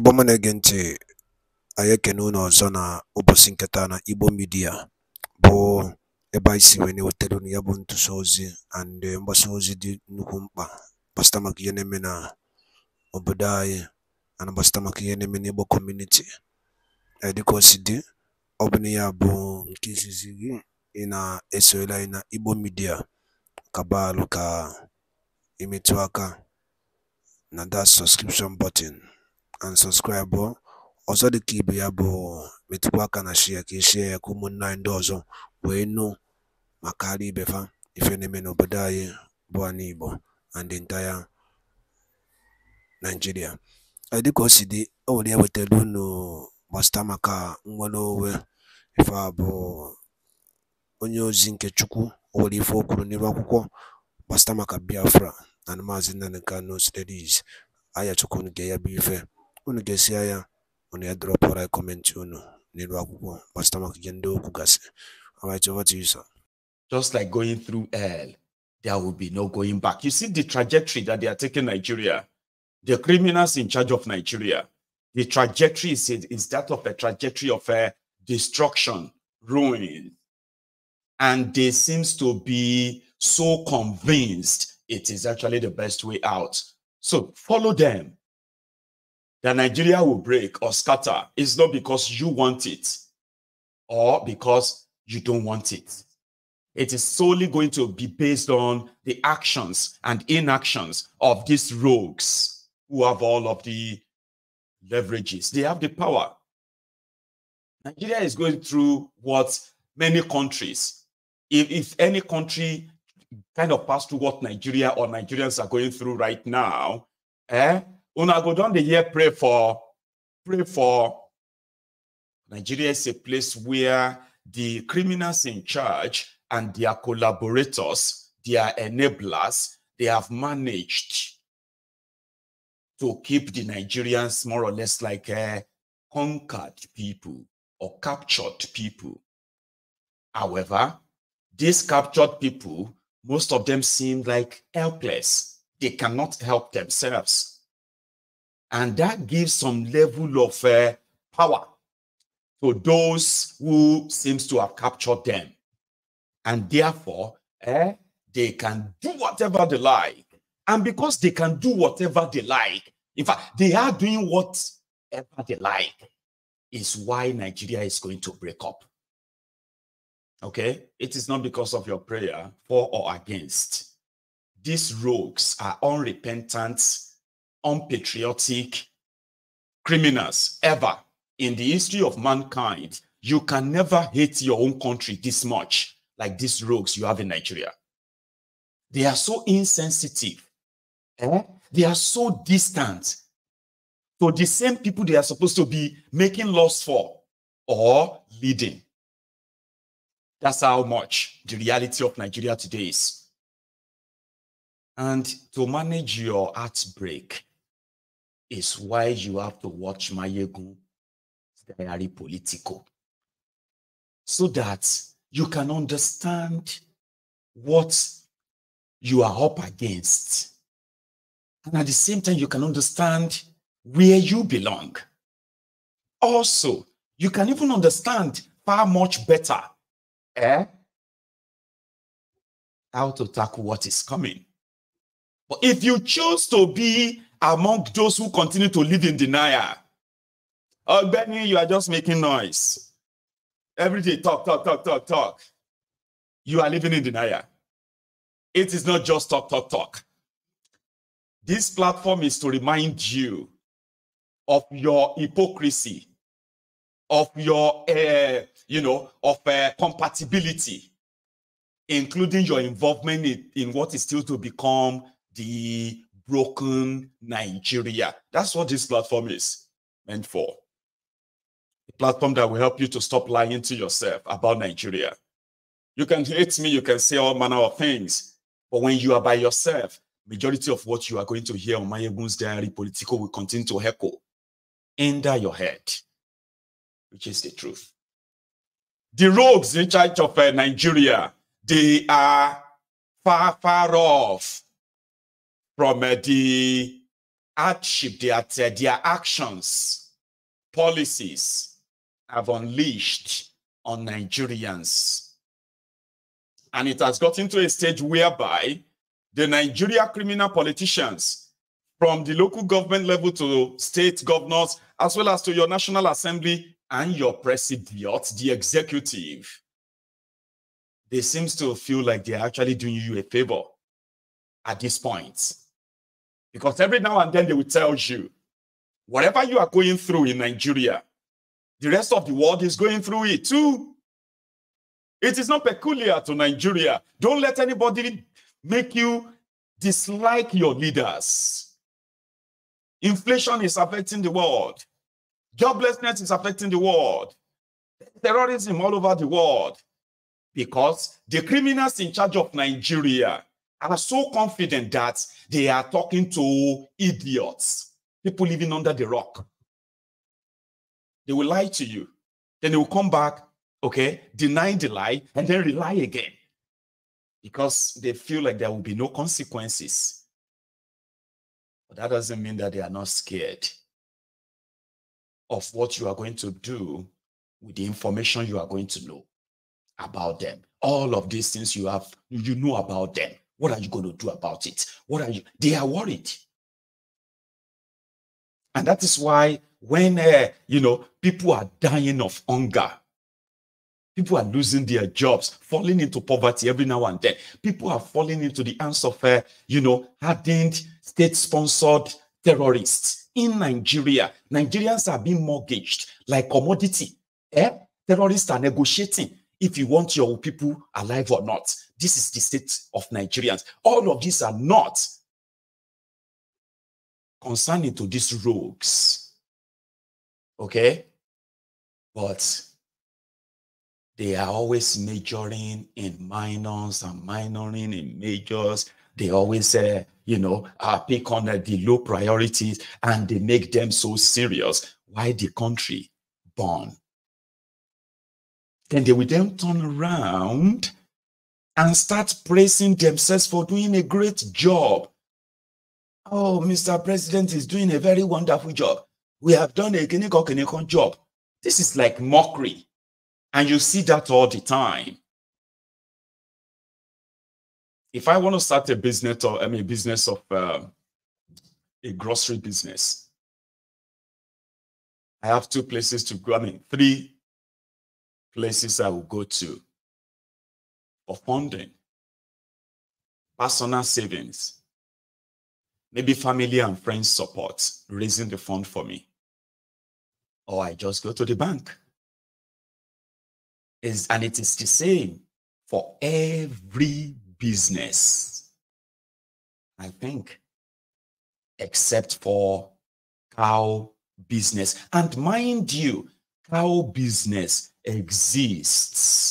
Igbo ọma na-ege ntị, anyị ekene unu ọzọ na ụbọchị nketa na Igbo midia bụ ebe anyị si wee na-ewetara unu ya bụ ntụsa ozi and mgbasa ozi dị nnukwu mkpa gbasịta maka ihe na-eme na obodo anyị ana gbasịta maka ihe na-eme n'Igbo community e, dịka o dị ọ bụ na ya bụ nke izizi gị ị na-esonyere anyị na Igbo Media kabalụ ka imetụ aka na that subscription button and bụ oh. ọzọ dịka ibe ya bụ metụkwa aka na shia ka eshia ya ka ụmụnna anyị ndị ọzọ wee nụ maka ara ibe fa ife na-eme n'obodo anyị bụ anyị Igbo and entire Nigeria dịka o si dị o nwere ya wetara unu gbasata maka nnwere onwe ife a bụ onye ozi nke Chukwu o were ife o kwuru n'ebe akwụkwọ gbasata maka Biafra na maazị Nnamdi Kanu steries aya Chukwu nke ya bụ ife unu desia ya unu ya unu alright over to you sir just like going through hell there will be no going back you see the trajectory that they are taking nigeria the criminals in charge of nigeria the trajectory is, is that of a trajectory of a uh, destruction ruin and they seems to be so convinced it is actually the best way out so follow them that Nigeria will break or scatter is not because you want it or because you don't want it. It is solely going to be based on the actions and inactions of these rogues who have all of the leverages. They have the power. Nigeria is going through what many countries, if, if any country kind of passed through what Nigeria or Nigerians are going through right now, eh, Una go down the year pray for pray for Nigeria is a place where the criminals in charge and their collaborators, their enablers, they have managed to keep the Nigerians more or less like uh, conquered people or captured people. However, these captured people, most of them seem like helpless. They cannot help themselves. And that gives some level of uh, power to those who seems to have captured them. And therefore, eh, they can do whatever they like. And because they can do whatever they like, in fact, they are doing whatever they like, is why Nigeria is going to break up. Okay? It is not because of your prayer for or against. These rogues are unrepentant unpatriotic criminals ever in the history of mankind. You can never hate your own country this much, like these rogues you have in Nigeria. They are so insensitive. Eh? They are so distant to the same people they are supposed to be making laws for or leading. That's how much the reality of Nigeria today is. And to manage your heartbreak, is why you have to watch Mayegun Diary Politico so that you can understand what you are up against. And at the same time, you can understand where you belong. Also, you can even understand far much better eh, how to tackle what is coming. But if you choose to be among those who continue to live in denial. Oh, Benny, you are just making noise. Every day, talk, talk, talk, talk, talk. You are living in denial. It is not just talk, talk, talk. This platform is to remind you of your hypocrisy, of your, uh, you know, of uh, compatibility, including your involvement in, in what is still to become the broken Nigeria. That's what this platform is meant for. A platform that will help you to stop lying to yourself about Nigeria. You can hate me, you can say all manner of things, but when you are by yourself, majority of what you are going to hear on my Mayegun's diary political will continue to echo under your head, which is the truth. The rogues in charge of uh, Nigeria, they are far, far off from uh, the hardship their uh, their actions, policies have unleashed on Nigerians. And it has gotten to a stage whereby the Nigeria criminal politicians from the local government level to state governors, as well as to your National Assembly and your president, the executive, they seem to feel like they're actually doing you a favor at this point. Because every now and then they will tell you, whatever you are going through in Nigeria, the rest of the world is going through it too. It is not peculiar to Nigeria. Don't let anybody make you dislike your leaders. Inflation is affecting the world. Joblessness is affecting the world. Terrorism all over the world. Because the criminals in charge of Nigeria are so confident that they are talking to idiots, people living under the rock. They will lie to you. Then they will come back, okay, deny the lie, and then rely again because they feel like there will be no consequences. But that doesn't mean that they are not scared of what you are going to do with the information you are going to know about them. All of these things you have, you know about them. What are you going to do about it? What are you? They are worried. And that is why when, uh, you know, people are dying of hunger, people are losing their jobs, falling into poverty every now and then, people are falling into the hands of, uh, you know, hardened state-sponsored terrorists in Nigeria. Nigerians are being mortgaged like commodity. Eh? Terrorists are negotiating if you want your people alive or not. This is the state of Nigerians. All of these are not concerning to these rogues. Okay? But they are always majoring in minors and minoring in majors. They always, uh, you know, uh, pick on uh, the low priorities and they make them so serious. Why the country born? Then they will then turn around and start praising themselves for doing a great job. Oh, Mr. President is doing a very wonderful job. We have done a kinikokinikon job. This is like mockery. And you see that all the time. If I want to start a business or I mean business of uh, a grocery business, I have two places to go. I mean, three places I will go to of funding, personal savings, maybe family and friends support, raising the fund for me. Or I just go to the bank. Is and it is the same for every business, I think, except for cow business. And mind you, cow business exists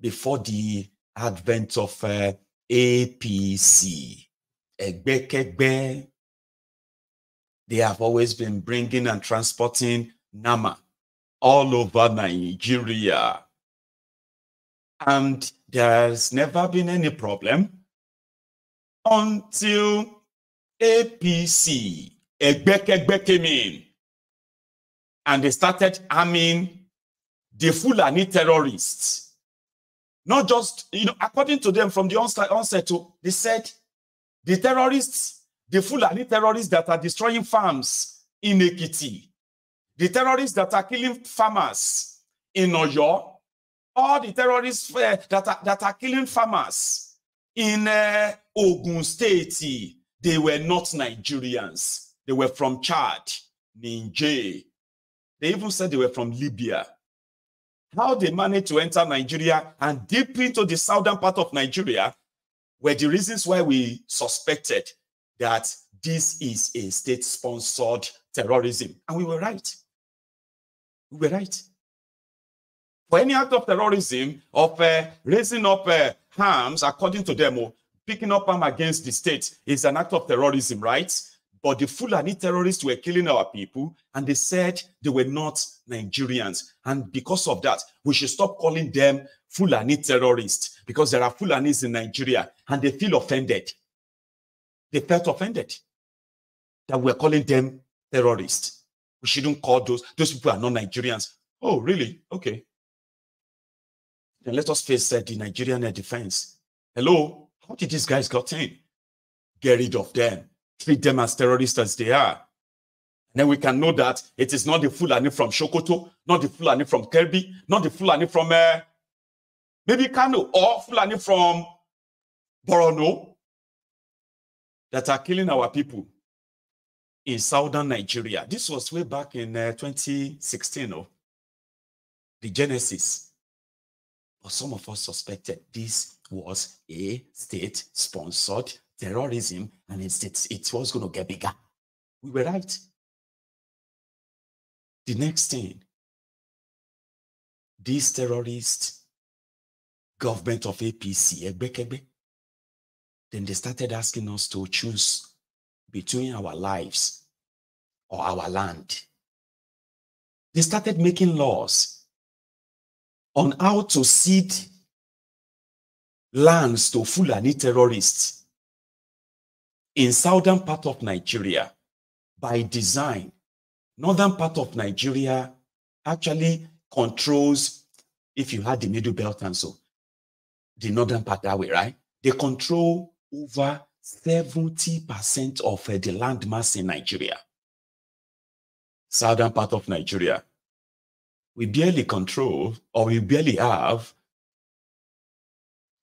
before the advent of uh, APC. They have always been bringing and transporting Nama all over Nigeria. And there's never been any problem until APC, Egbekegbe came in and they started arming the Fulani terrorists not just, you know, according to them from the onset, onset to, they said the terrorists, the Fulani terrorists that are destroying farms in Ekiti, the terrorists that are killing farmers in Oyo, all the terrorists uh, that, are, that are killing farmers in uh, Ogun State, they were not Nigerians. They were from Chad, Niger. They even said they were from Libya how they managed to enter Nigeria and deep into the southern part of Nigeria were the reasons why we suspected that this is a state sponsored terrorism. And we were right. We were right. For any act of terrorism, of uh, raising up uh, according to them, oh, picking up arms against the state is an act of terrorism, right? but the Fulani terrorists were killing our people, and they said they were not Nigerians. And because of that, we should stop calling them Fulani terrorists because there are Fulanis in Nigeria, and they feel offended. They felt offended that we're calling them terrorists. We shouldn't call those. Those people are not Nigerians. Oh, really? Okay. Then let us face uh, the Nigerian defense. Hello, how did these guys got in? Get rid of them treat them as terrorists as they are. And then we can know that it is not the Fulani from Shokoto, not the Fulani from Kirby, not the Fulani from uh, maybe Kano, or Fulani from Borono that are killing our people in southern Nigeria. This was way back in uh, 2016, oh, the Genesis. But some of us suspected this was a state-sponsored terrorism, and it's, it's, it was going to get bigger. We were right. The next thing, this terrorist government of APC, then they started asking us to choose between our lives or our land. They started making laws on how to cede lands to Fulani terrorists in southern part of Nigeria by design. Northern part of Nigeria actually controls, if you had the Middle Belt and so, the northern part that way, right? They control over 70% of uh, the land mass in Nigeria. Southern part of Nigeria. We barely control, or we barely have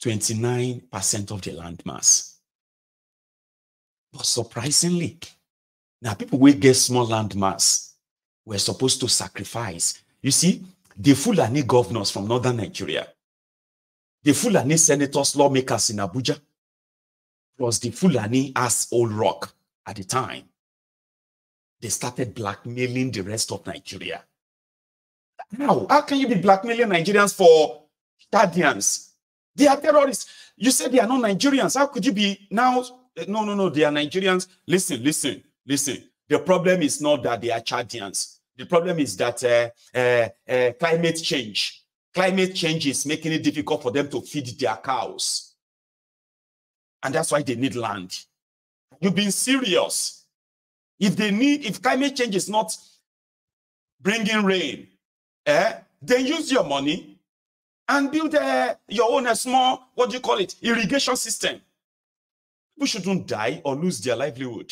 29% of the land mass. But surprisingly, now people will get small land mass were supposed to sacrifice. You see, the Fulani governors from northern Nigeria, the Fulani senators, lawmakers in Abuja, plus the Fulani as old rock at the time, they started blackmailing the rest of Nigeria. Now, How can you be blackmailing Nigerians for guardians? They are terrorists. You said they are not Nigerians. How could you be now no, no, no. They are Nigerians. Listen, listen, listen. The problem is not that they are Chadians. The problem is that uh, uh, uh, climate change, climate change is making it difficult for them to feed their cows, and that's why they need land. You've been serious. If they need, if climate change is not bringing rain, eh, then use your money and build uh, your own uh, small, what do you call it, irrigation system. People shouldn't die or lose their livelihood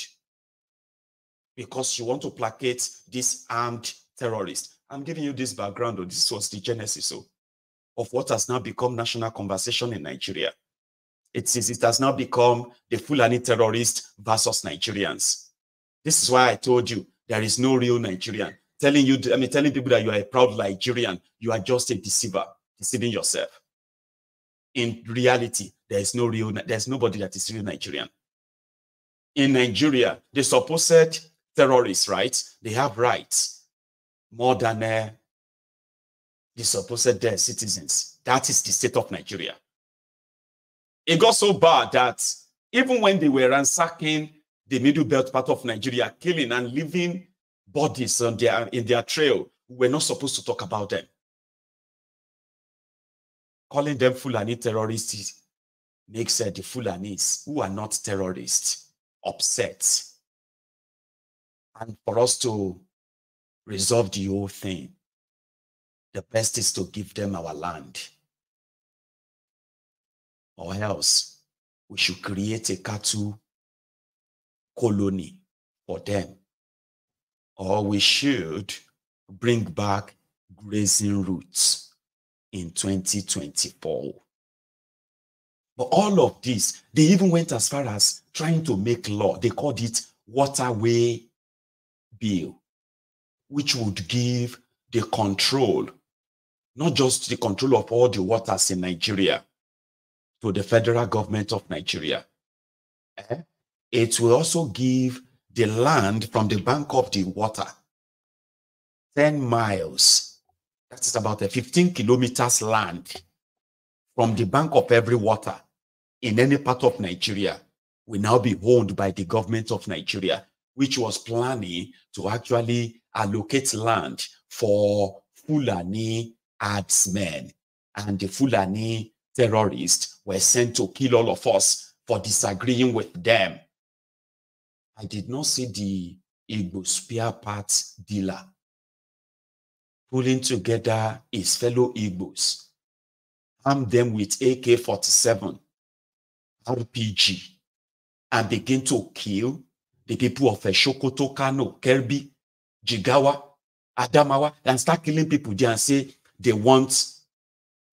because you want to placate this armed terrorist. I'm giving you this background, or this was the genesis of what has now become national conversation in Nigeria. It is it has now become the Fulani terrorist versus Nigerians. This is why I told you there is no real Nigerian. Telling you, I mean, telling people that you are a proud Nigerian, you are just a deceiver, deceiving yourself in reality, there is no real, there's nobody that is real Nigerian. In Nigeria, the supposed terrorists, right? They have rights more than uh, the supposed uh, citizens. That is the state of Nigeria. It got so bad that even when they were ransacking the middle belt part of Nigeria, killing and leaving bodies on their, in their trail, we were not supposed to talk about them calling them Fulani terrorists makes uh, the Fulanis, who are not terrorists, upset. And for us to resolve the whole thing, the best is to give them our land. Or else, we should create a cattle colony for them. Or we should bring back grazing routes in 2024. But all of this, they even went as far as trying to make law. They called it waterway bill, which would give the control, not just the control of all the waters in Nigeria, to the federal government of Nigeria. Eh? It will also give the land from the bank of the water 10 miles that is about a 15 kilometers land from the bank of every water in any part of Nigeria will now be owned by the government of Nigeria, which was planning to actually allocate land for Fulani herdsmen. And the Fulani terrorists were sent to kill all of us for disagreeing with them. I did not see the Igbo spear parts dealer pulling together his fellow Igbos, arm them with AK 47, RPG, and begin to kill the people of Shokoto, Kano, Kerbi, Jigawa, Adamawa, and start killing people there and say they want,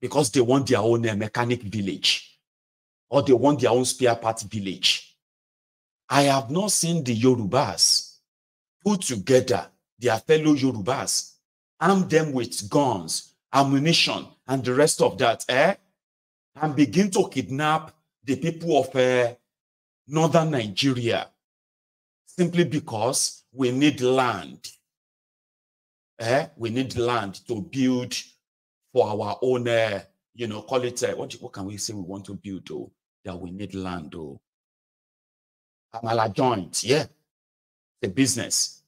because they want their own uh, mechanic village or they want their own spare part village. I have not seen the Yorubas put together their fellow Yorubas arm them with guns, ammunition, and the rest of that, eh? And begin to kidnap the people of uh, northern Nigeria simply because we need land. Eh? We need land to build for our own, uh, you know, call it, uh, what, what can we say we want to build, though? That we need land, though. Amala joint, yeah. The business.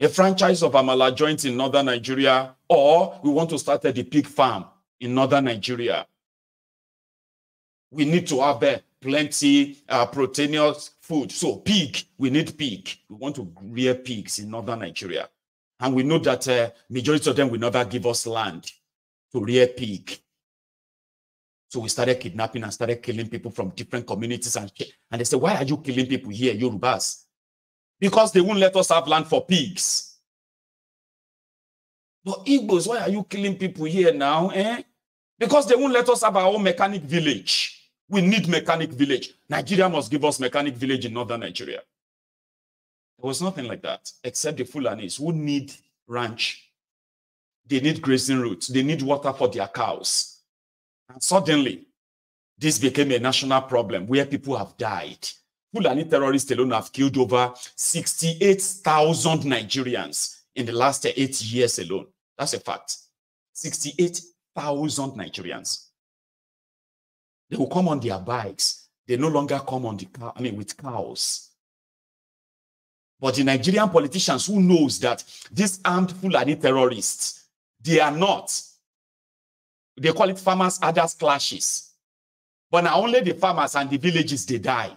a franchise of Amala joint in northern Nigeria, or we want to start a pig farm in northern Nigeria. We need to have uh, plenty uh, proteinous food. So pig, we need pig. We want to rear pigs in northern Nigeria. And we know that uh, majority of them will never give us land to rear pig. So we started kidnapping and started killing people from different communities. And, and they said, why are you killing people here, Yorubas? because they won't let us have land for pigs. But Igbos, why are you killing people here now? Eh? Because they won't let us have our own mechanic village. We need mechanic village. Nigeria must give us mechanic village in northern Nigeria. There was nothing like that, except the Fulanis who need ranch. They need grazing routes. They need water for their cows. And suddenly, this became a national problem where people have died Fulani terrorists alone have killed over 68,000 Nigerians in the last eight years alone. That's a fact. 68,000 Nigerians. They will come on their bikes. They no longer come on the car, I mean, with cows. But the Nigerian politicians who knows that these armed Fulani terrorists, they are not. They call it farmers' others clashes. But not only the farmers and the villages, they die.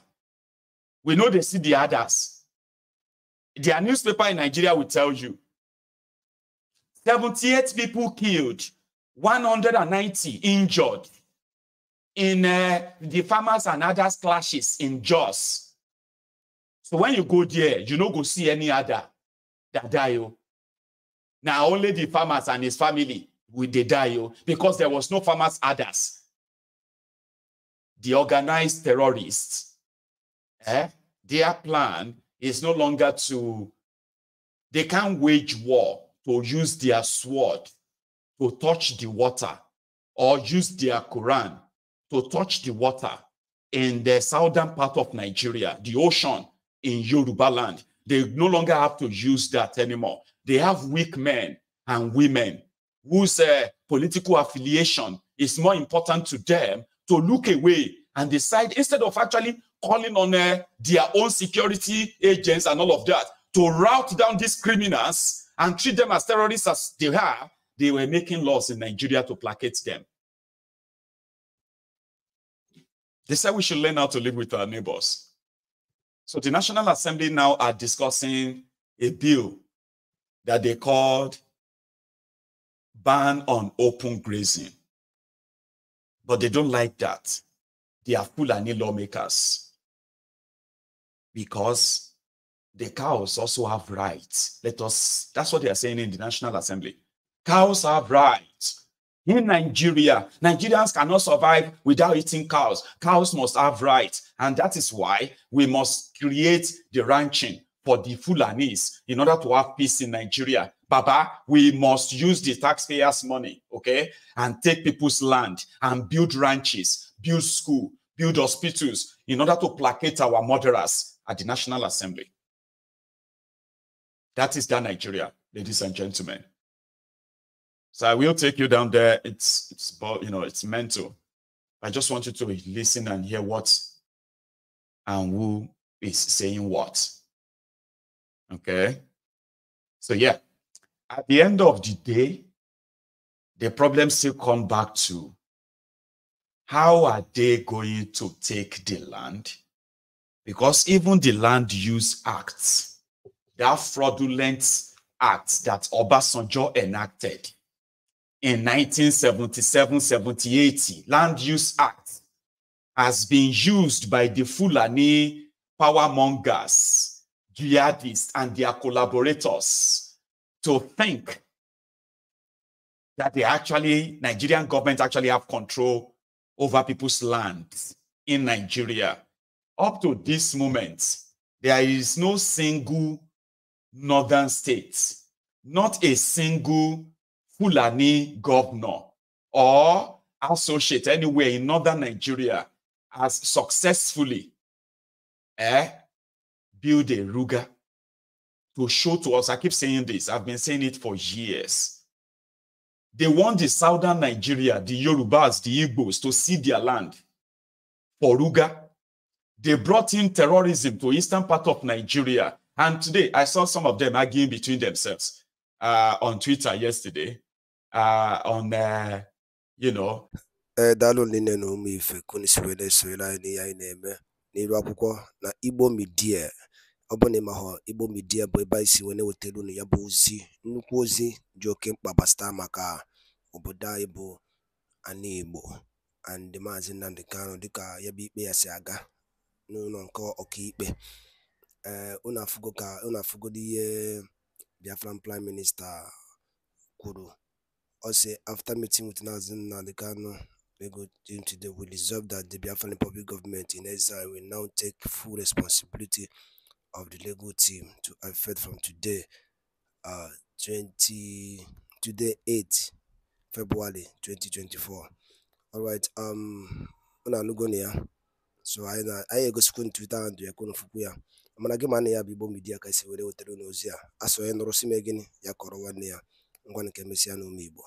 We know they see the others. Their newspaper in Nigeria will tell you 78 people killed, 190 injured in uh, the farmers and others clashes in Jos. So when you go there, you no go see any other that die. Oh. Now only the farmers and his family will they die oh, because there was no farmers others. The organized terrorists eh, their plan is no longer to, they can't wage war to use their sword to touch the water or use their Quran to touch the water in the southern part of Nigeria, the ocean in Yoruba land. They no longer have to use that anymore. They have weak men and women whose uh, political affiliation is more important to them to look away and decide instead of actually calling on uh, their own security agents and all of that to rout down these criminals and treat them as terrorists as they are, they were making laws in Nigeria to placate them. They said we should learn how to live with our neighbors. So the National Assembly now are discussing a bill that they called Ban on Open Grazing. But they don't like that. They are Fulani lawmakers because the cows also have rights. Let us, that's what they are saying in the National Assembly. Cows have rights. In Nigeria, Nigerians cannot survive without eating cows. Cows must have rights. And that is why we must create the ranching for the Fulanis in order to have peace in Nigeria. Baba, we must use the taxpayers' money, okay, and take people's land and build ranches, build school, build hospitals in order to placate our murderers at the National Assembly. That is that Nigeria, ladies and gentlemen. So I will take you down there. It's it's you know it's mental. I just want you to listen and hear what and who is saying what. Okay. So yeah, at the end of the day, the problem still come back to how are they going to take the land because even the Land Use Act, that fraudulent act that Obasanjo enacted in 1977 78 Land Use Act, has been used by the Fulani power mongers, jihadists, and their collaborators to think that they actually, Nigerian government actually have control over people's land in Nigeria up to this moment, there is no single northern state, not a single Fulani governor or associate anywhere in northern Nigeria has successfully eh, built a Ruga to show to us. I keep saying this, I've been saying it for years. They want the southern Nigeria, the Yorubas, the Igbos to see their land for Ruga they brought in terrorism to eastern part of Nigeria. And today I saw some of them arguing between themselves uh, on Twitter yesterday. Uh, on uh, you know. n'ụlọ nke ọkaikpe eh, unu afụgo ka unu afụgodo ihe biafran prime minista kwuru ọ sị after meeting with Mazi Nnamdi Kanu Lego team today we resolve that the Biafran Republic government in exile will now take full responsibility of the Lego team to effect from today uh, 20 today 8 February 2024 all right um unu anụgo na ya so anyị egosikwu ntwita ndụ ya konofukwu ya mana gị mana ya bụ Igbo midia ka esi were wetara n'ozi a asụ onye nụrụ si m gịnị ya kọrọ nwanne ya ngwa nke mesịa n'ụmụ Igbo